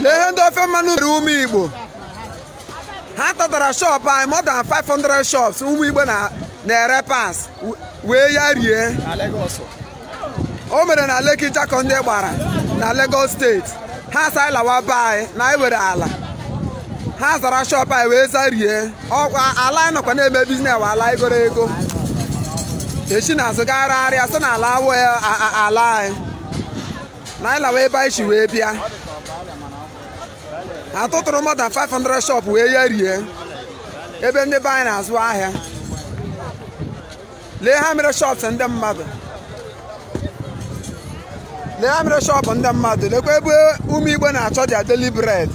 na ihe ndị ofe mmanụ mere ụmụ igbo ha tatara shop anyị more than 500 shops ụmụ igbo na-ere pas wee ya rie o mere na Lekki Jacko ndị gbara na Lagos steeti ha sa lawa be anyị na anyị were ala ha zara shop anyị wee zarie ọkwa ala anyị nọkwa na-eme biznes wa ala igoro ego echi na-azụ arịa sị na ala awụ ala anyị na anyị lawa ebe anyị chi wee bịa atụtụrụ mọda 500 shop wee ya rie ebe ndị be anyị na-azụ ahịa lee ha mere shops ndị mmadụ lee ha mere shọpụ ndị mmadụ lekwa ebe ụmụ igbo na-achọ dị adeli bred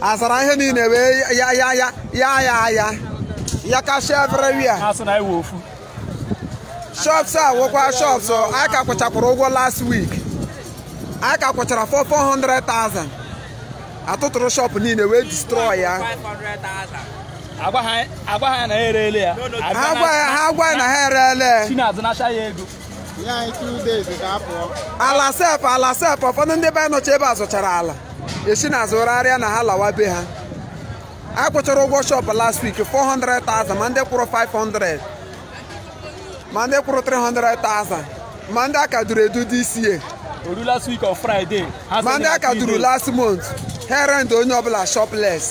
azara ihe niile wee ya ya ya ya ya ya ya kashia everywhere shops a wụkwa shọps a ka kwụchakwara ụgwọ last week A ka kwụchara 400,000 atụtụrụ shọpụ niile wee distrọọ ya agwa ha na ha ereele ya ha agwa ya na ha ereele ego. ala sef ala sef ụfọdụ ndị be anyị nọcha ebe a zụchara ala esi na azụgharịa na ha lawa be ha a kwụchara ụgwọ shọpụ last week 400,000 ma ndị kwụrụ 500 ma ndị kwụrụ 300,000 ma ndị aka duru edu dị isie ma ndị aka duru last month herend onye ọbụla shopless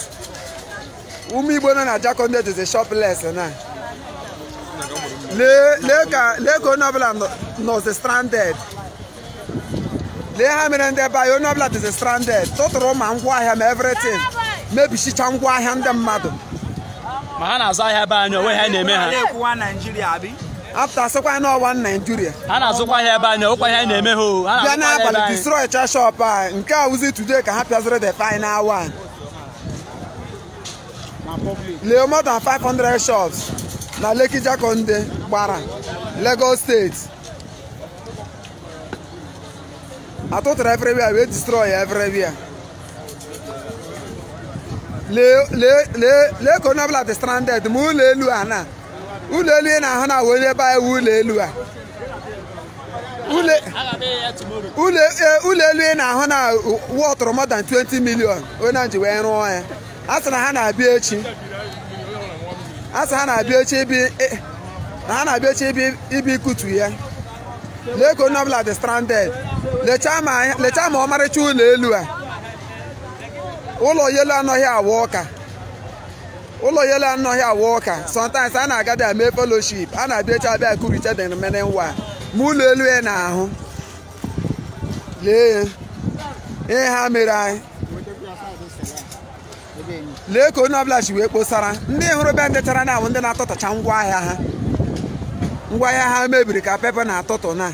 ụmụ igbo nọ na jakonde dịzi shopless na lee ka onye ọbụla nọzi stranded lee ha mere ndị be anyị onye ọbụla dịzi stranded tụtụrụ ma ngwaahịa ma everything mebichicha ngwaahịa ndị mmadụ ma ha na-azụ ahịa be anyị onwe ha na-eme ha afta asịkwa na ọwa Naijiria ha na-azụkwa ahịa ebe anyị ọkwa ihe anyị na-eme ha bịa n'abalị destroy cha a nke a wuzi today ka ha pịaziri the final one lee more than 500 shops na Lekki Jakonde gbara Lagos steeti atụtụrụ everywhere wee destroy everywhere lee lee lee lee ka onye ọbụla dị stranded ma ụlọ elu a na ụlọ elu ị na-ahụ na wee ebe anyị ụlọ elu a ụlọ e, elu ị na-ahụ na ụwa ọtụrụ tọrọ 20 million onye na ha na-abịa echi ibi na ikutu ya lake onye ọbụla stranded lechaa ma ọmarịcha ụlọ elu a ụlọ anaghị awa ọka ụlọ yelo anọghị awụ ụka sometimes a na-aga bịa mee fellowship a na-abịa echi abịa kurite the nwa ma ụlọ elu ya na-ahụ lee ihe ha mere anyị lee ka onye ọbụla ji wee kposara ndị hụrụ be ndị chara na-awụ ndị na atụtụcha ngwa ahịa ha ha mebiri ka pepe na-atụtụ na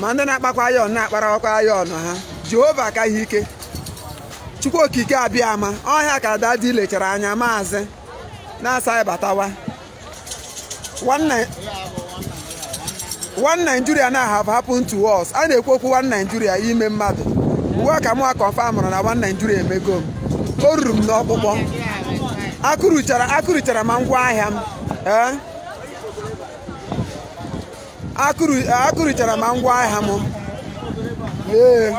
ma ndị na-akpakwa ayọn na ya ọnụ ha jehova akaghị ike chukwu okike abịa ama ọhịa ka dadi lechara anya maazị na-asaghị batawa one Nigeria na have happened to us a na-ekwu okwu one Nigeria ime mmadụ uwe ka mụwa na one Nigeria emego m o ruru m n'ọkpụkpọ akụrụchara ma ngwa ahịa m akụrụchara ma ngwa ahịa m ee